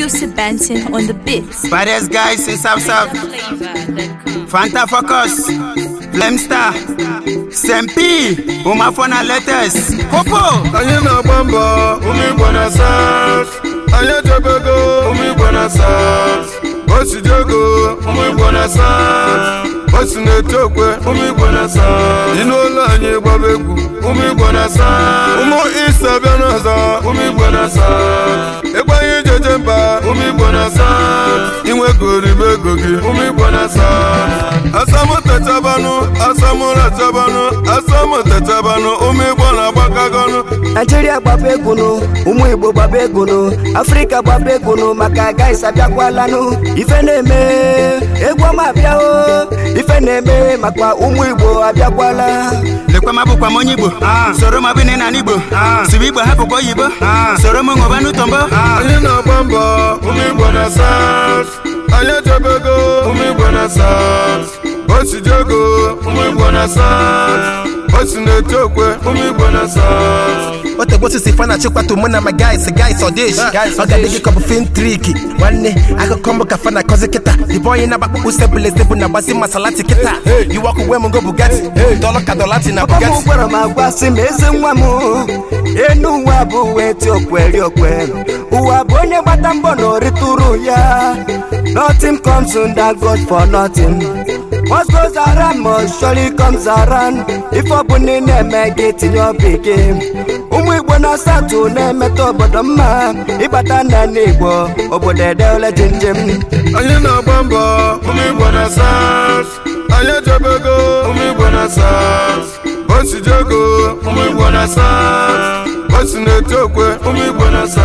Yusuf Benson on the beats. Baddest guys in South South. Fanta Focus. Flemstar. Sempi. Umafona Letters. Popo. Anyị na-agba mbọ ụmụ na South. Anyị ejebego ụmụ Igbo na South. Osidiego ụmụ Igbo na South. o na-eto okwe ụmụ igbo na-asa dị n'ụlọ anyị gbaba egwu ụmụ igbo na-asa ụmụ ụmụ na nkeje mba ụmụ igbo na inwe gori ego gị ụmụ igbo na asa asamụtachabanụ asamụrachabanụ asamụtachabanụ ụmụ igbo na-agbakọgonụ naijiria gbaba egwunụ ụmụ igbo gbaba egwunụ afrịka gbaba egwunụ maka gaịs abịakwalanụ ife na-eme egwu ọma abịa na eme maka ụmụ igbo abịakwala lekwa m abụkwa m onye igbo soro m abụ nne na igbo siwe igbo hapụkwa oyibo soro m ṅụba n'ụtọ mbọ onye na-agba mbọ ụmụ igbo na south onye jebego ụmụ igbo na south osijego ụmụ igbo na south osi na-eti okwe ụmụ igbo na south otegosisi fanachi kwatu mụ na ma guys guys ọdịshi ọ triki nwanne akụkọ mbụ ka fana akọzi kịta ịbụ onye na-agbakpụkpụ usebụl ezebụ na agbazi masalati kịta uwe go bugati dọlọ ka gwara m agwa eze enu abụ ụwa bụ onye gbata mbọ na ya nothing comes that God for nothing What goes around must surely comes around. If ọbụna na-eme gị tinye ụmụ Igbo na-asatụ na-emeta obodo mma ịgbata na Igbo obodo edeole njem onye na mbọ ụmụ Igbo na SARS onye ụmụ Igbo na o na-eti okwe ụmụ na-asa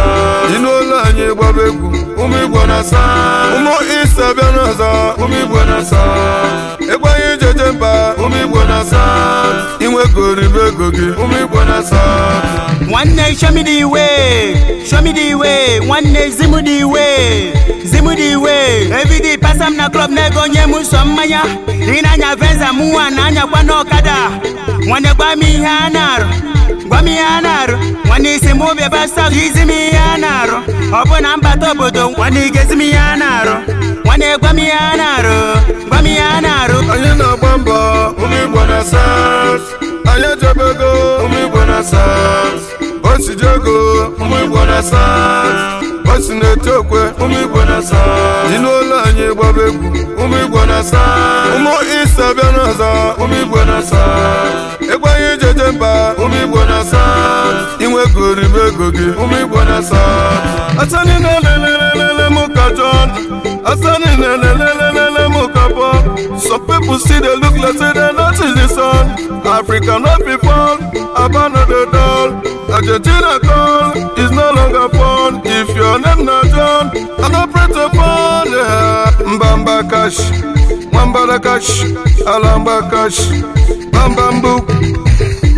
dị n'ụlọ anyị gbaba egwu ụmụ igbo na-asa ụmụ isi abịa n'ọzọ ụmụ igbo na-asa egwu anyị jeje mba ụmụ igbo na-asa inwegoribe ego gị ụmụ igbo na-asa nwanne shomidi iwe shomidi iwe nwanne zimudi iwe zimudi iwe evidi pasam na klọb na-ego nye m nsọ mmanya ị na-anya venza mụnwa na anyakwa n'ọkada nwanne gba m ihe a na-arụ m ya na-arụ nwanne isi m obi ebe izi m ihe a na-arụ ọ bụ na mbata obodo nwanne igezi m ihe a na-arụ nwanne gwa a na-arụ gwa a na-arụ onye na-agba mbọ na South onye jebego ụmụ Igbo na South osijego ụmụ Igbo na South osi na-eti okwe ụmụ Igbo ego gị ụmụ igbo na-asa asani na-elelelele m ka John asani na-elelelele m ka some people still dey look like say dem no see the sun Africa no be fun Aba no dey dull Argentina call is no longer fun if your name na John I no pray to fun mbamba cash nwambara cash alamba cash bambambu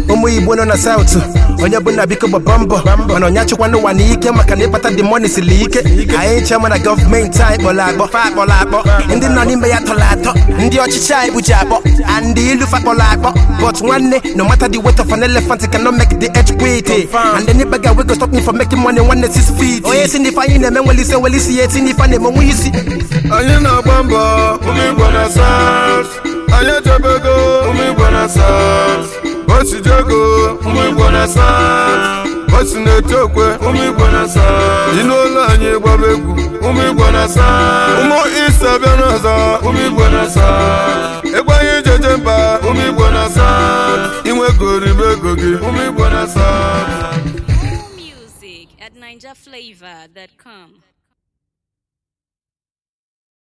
ụmụ igbo nọ na South onye bụ na biko gbaba mbọ mana onye achịkwa n'ụwa ike maka na ịkpata dị mọni siri ike anyị nche mana gọọmenti anyị kpọrọ akpọ fa akpọrọ akpọ ndị nọ n'ime ya tọrọ atọ ndị ọchịchị anyị kpuchi akpọ and ilu fa kpọrọ akpọ but nwanne no matter the weight of an elephant cannot make the edge quit and any beggar wey go stop me from making money nwanne six feet onye si n'ife anyị na-eme nwere isi nwere isi ya eti n'ife na-eme nwe isi anyị na-agba mbọ ụmụ igbo na south anyị echebego ụmụ igbo na south osi jogo ụmụ igbo na saa osi na-eto okwe ụmụ igbo na saa dị n'ụlọ anyị gbaba ụmụ igbo na saa ụmụ isa bịa n'ọzọ ụmụ igbo na saa ịgba anyị mba ụmụ igbo na saa inwegoro ibe ego gị ụmụ igbo na saa